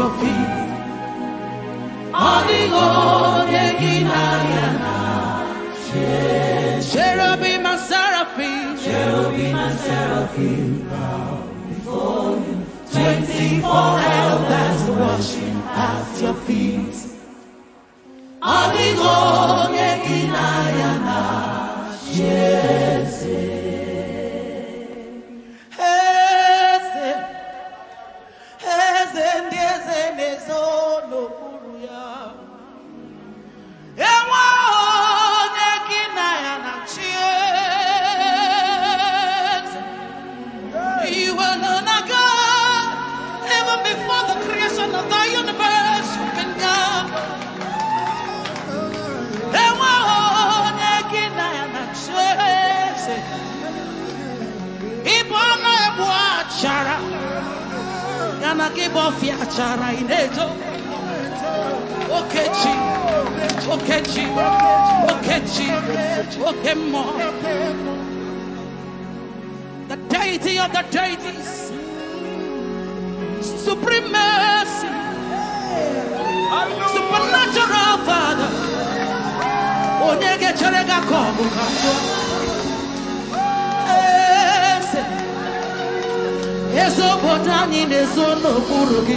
trophy. Cherubim and seraphim, cherubim and seraphim bow before you. Twenty-four elders worship at your feet. Adigo yekinayana, Jesus. Okechi. Okechi. Okechi. Okemo. The deity of the deities. Supreme mercy. Supernatural Father. Onyegecherega kobuka. ezi obodo anyị na-ezo n'okpuru gị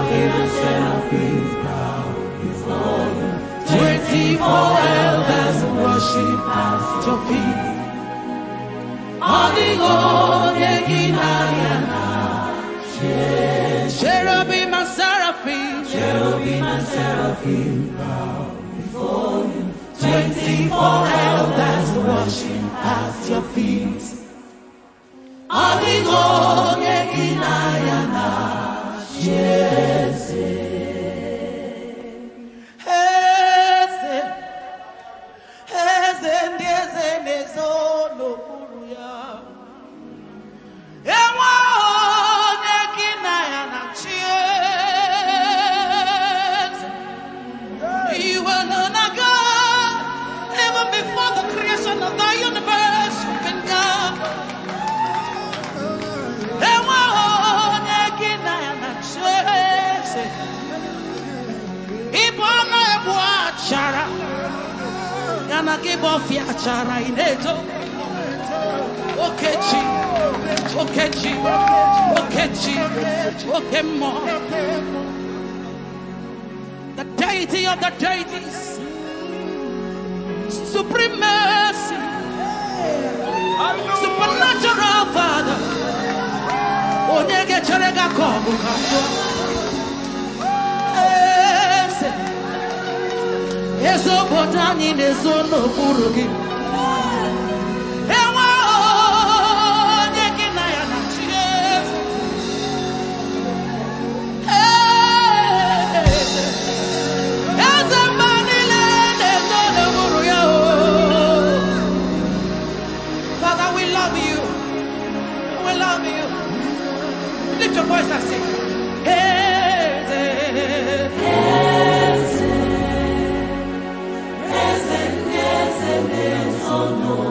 is Twenty-four elders worship at your feet. Holding cherubim and seraphim bow before you. Twenty-four elders worship at your feet. Jesus. Give akibofia chara ineto okechi okechi okechi okemo the deity of the deities supreme mercy supernatural father onyege chere ga kobu ezobota anyị na-ezo n'okpuru gị Oh no.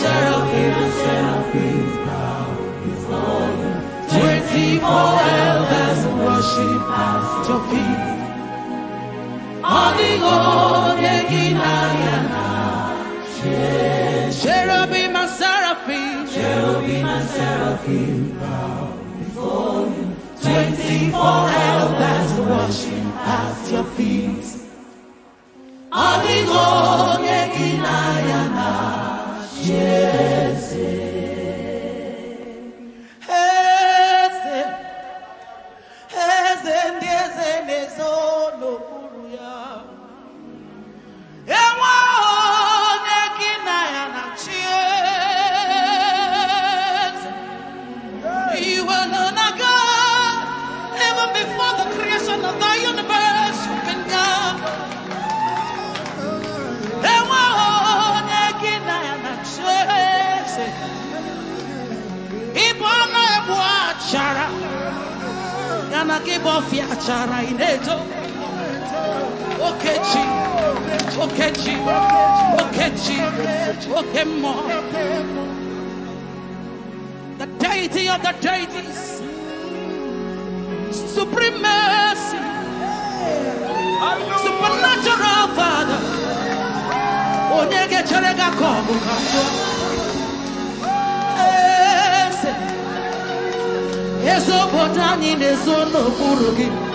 seraphim and seraphim bow before you. Twenty-four elders worship at your feet. Adigo deginayana. Cherubim and seraphim. Cherubim and seraphim bow before you. Twenty-four elders worship at your feet. Adigo deginayana. Jesus. okechi okechi okechi okemo the deity of the deities supreme mercy supernatural father onye chere ga ka ọ bụ ka eze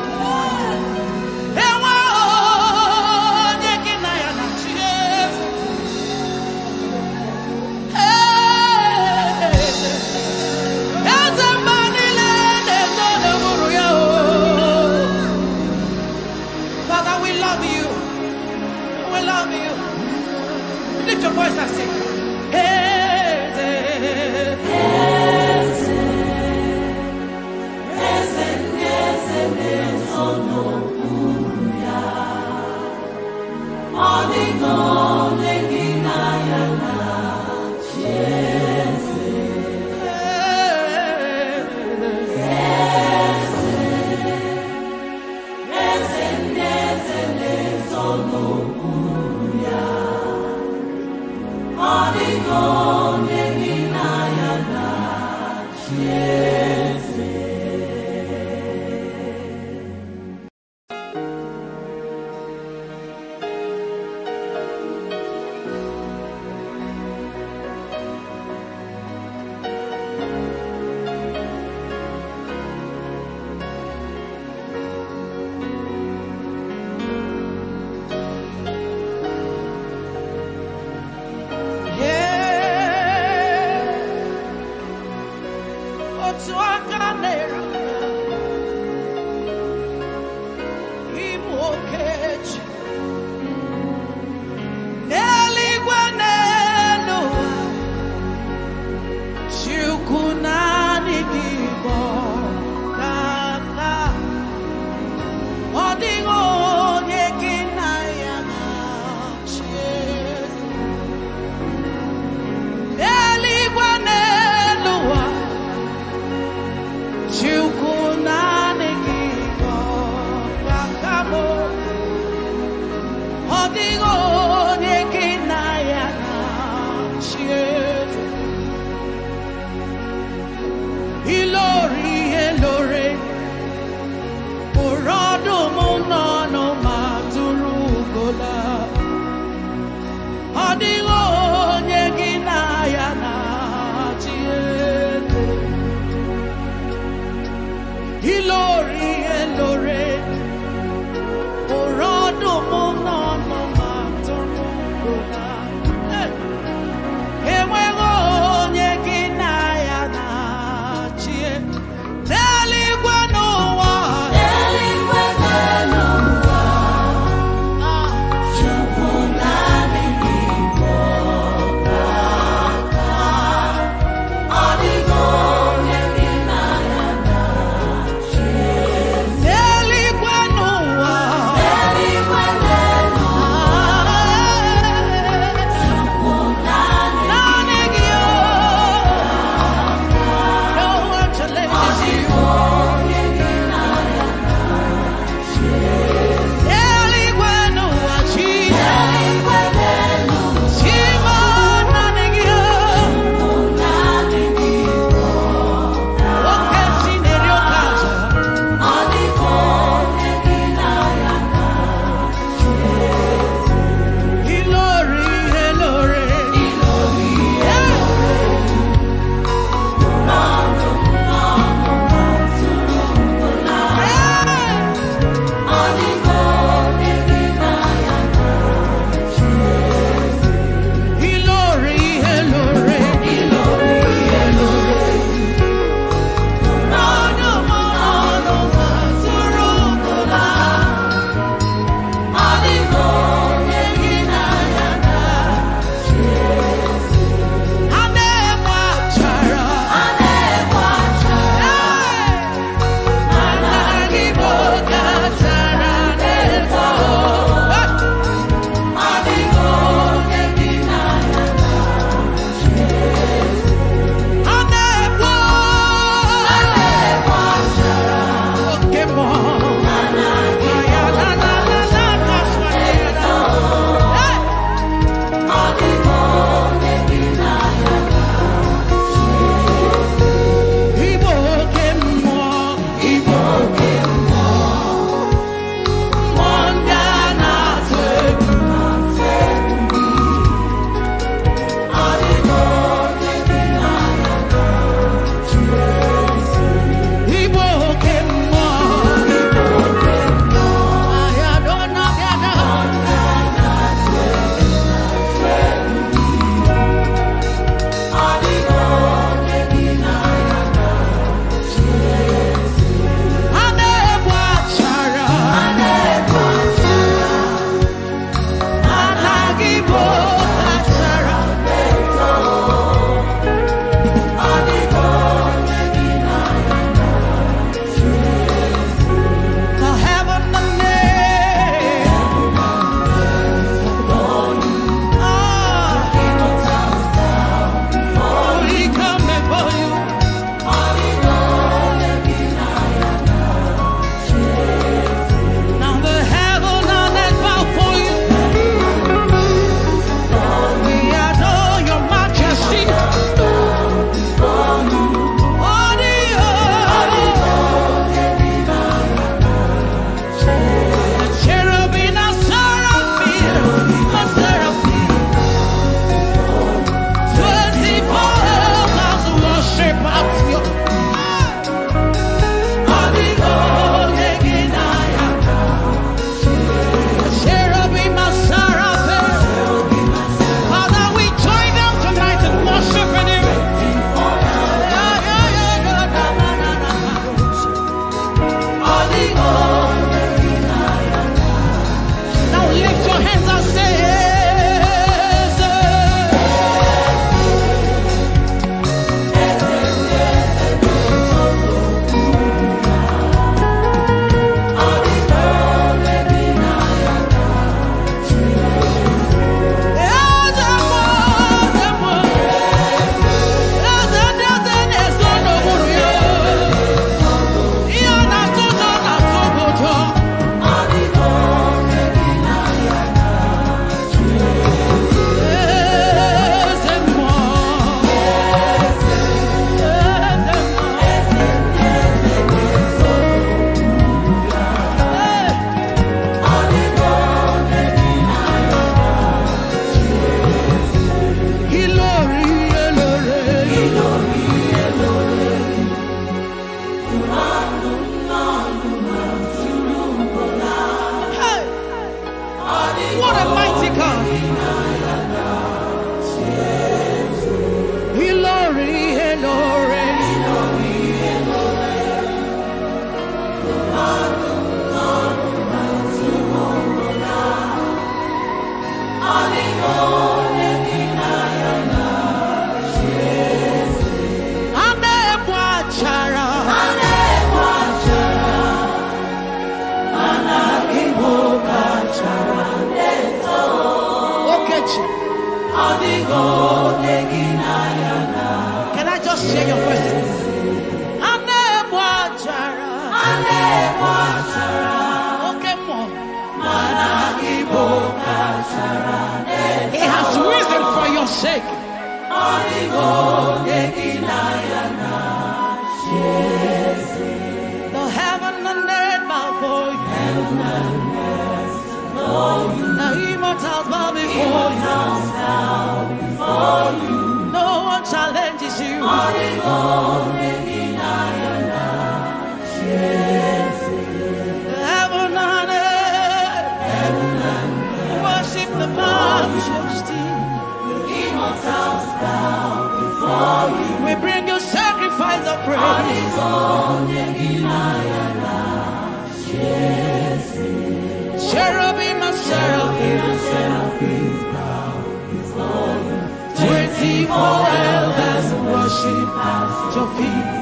evil elders worship at your feet.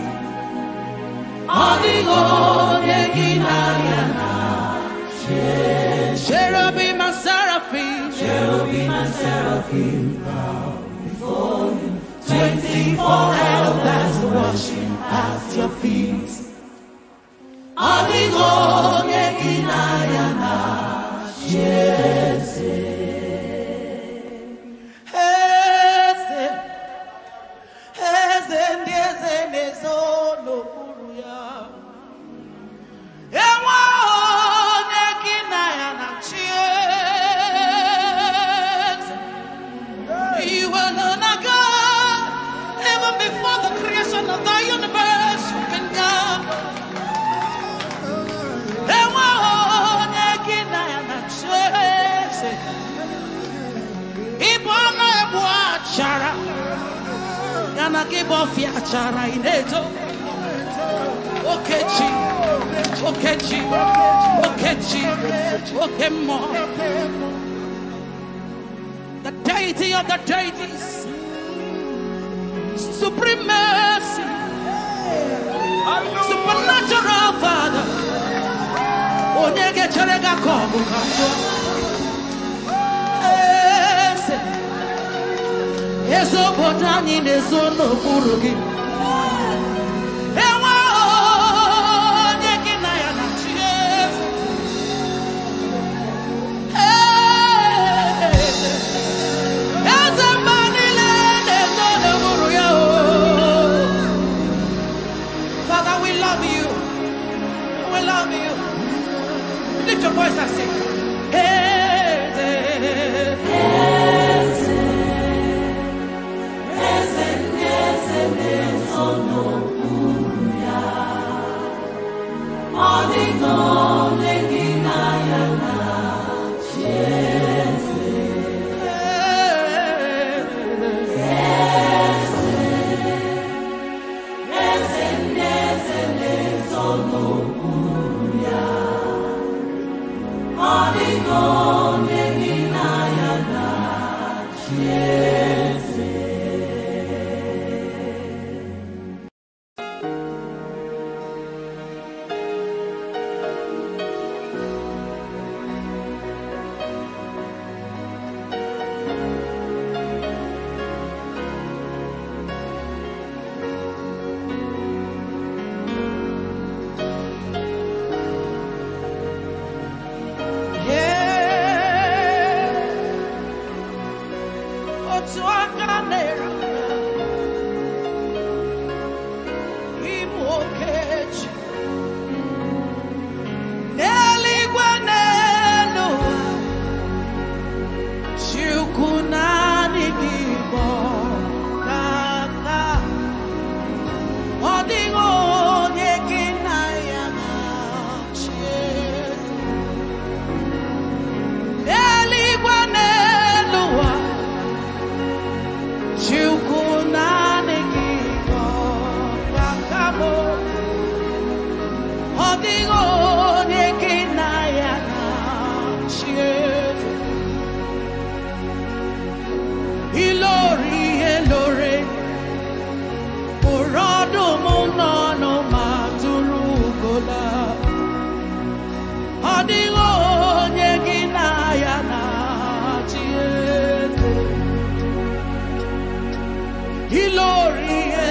Adi onye gị Cherubim and seraphim, cherubim and seraphim bow before you. Twenty-four elders worship at your feet. Adi onye gị Jesus. okechi okechi okechi okemo the deity of the deities supreme mercy supernatural father ga Mesopotami mezo n'okpuru gị He glorious.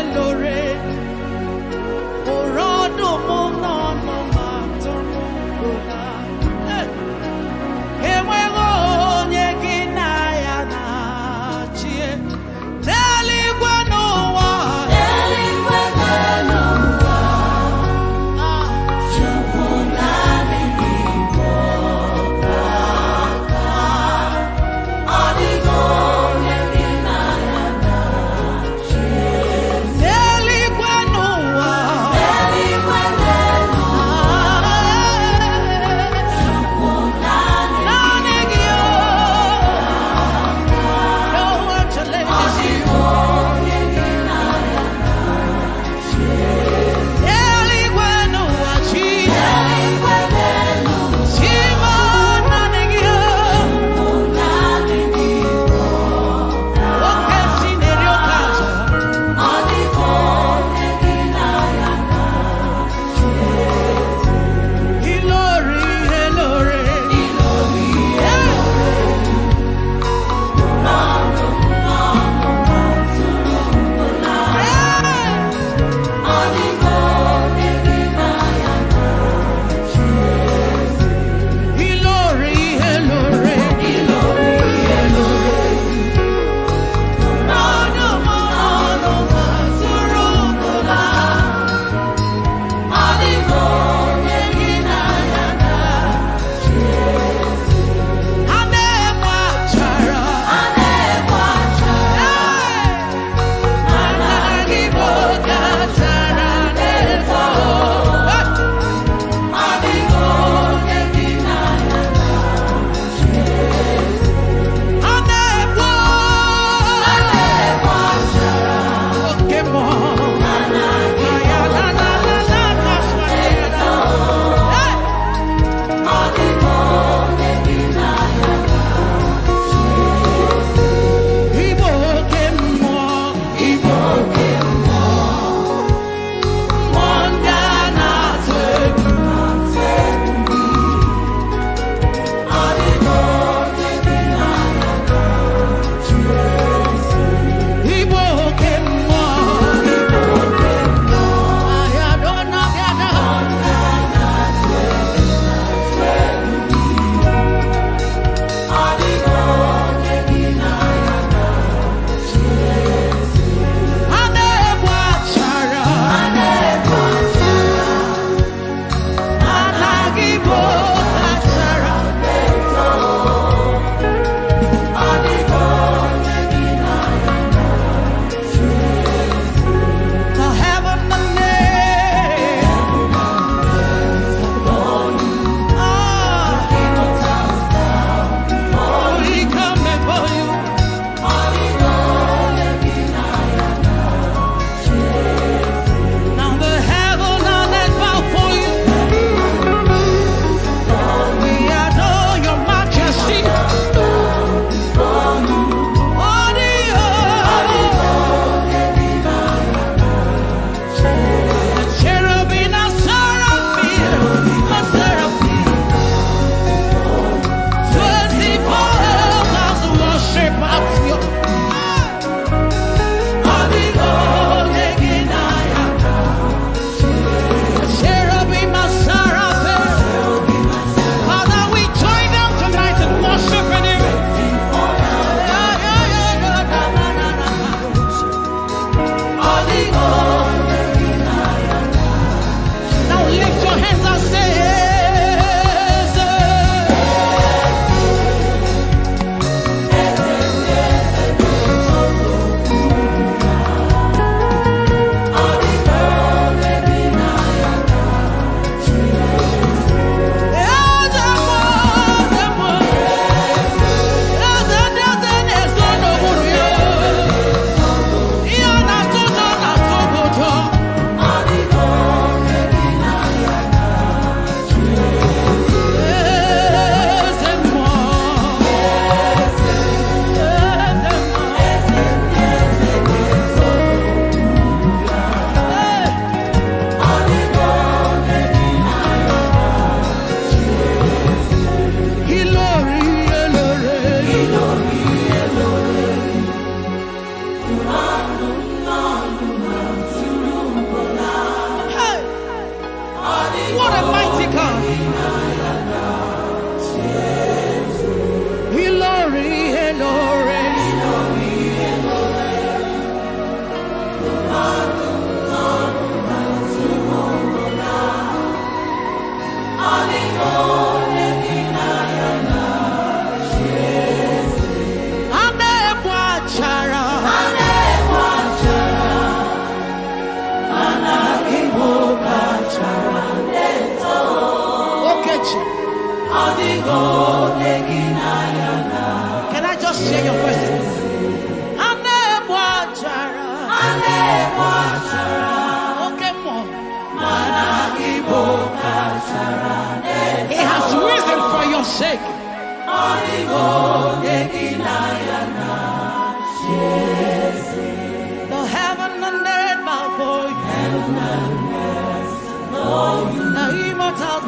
Lord's house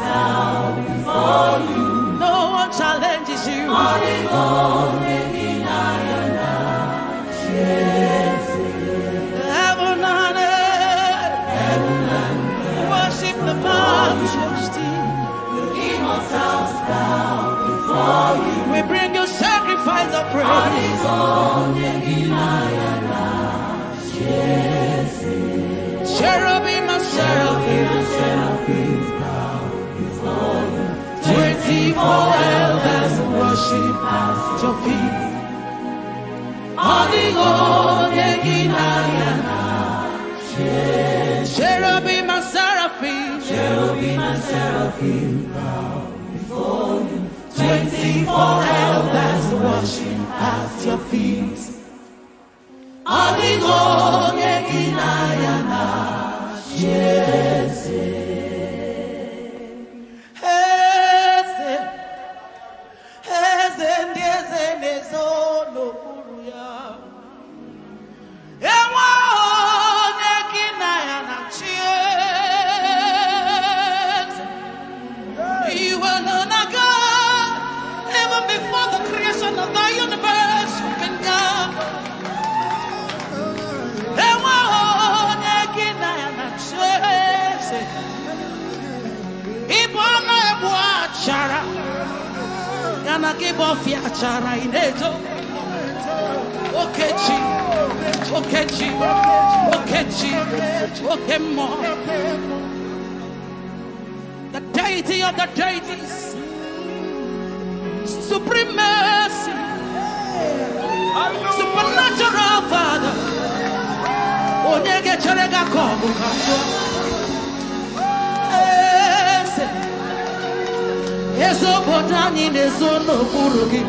bow before you. No one challenges you. forever worship at your feet. Ọdịgo onye gị n'anya Cherubim and seraphim, cherubim and seraphim bow before you. Twenty-four elders worship at your feet. Ọdịgo onye gị n'anya Ana che boffia c'era Okechi, okechi, okechi, okemo. The deity of the deities. Supreme mercy. Supernatural Father. Yeso potani no kuruki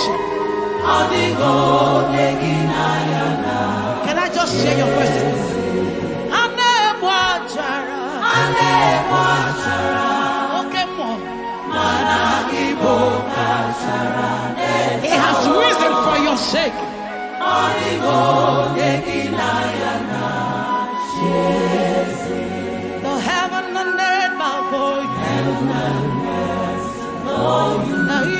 Can I just share your voices? He has risen for your sake. The heaven and earth bow for you.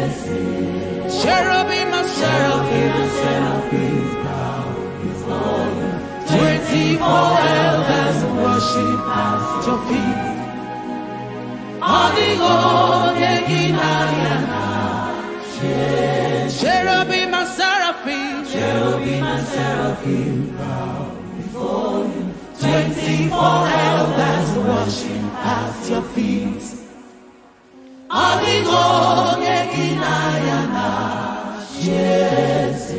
seraphim, the seraphim bow before you. Twenty-four elders worship at your feet. Odigo neginariana. Cherubim and seraphim, cherubim and seraphim bow before you. Twenty-four elders worship at your feet. Odigo neginariana. Yes.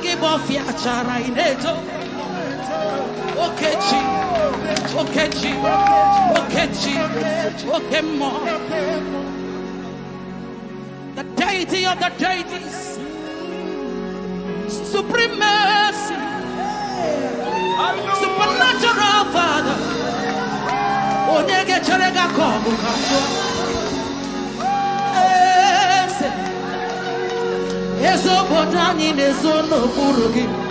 akibofia chara ineto okechi okechi okechi okemo the deity of the deities supreme mercy supernatural father onyege chere ga kogo ezobodanyị na-ezo n'okpuru gị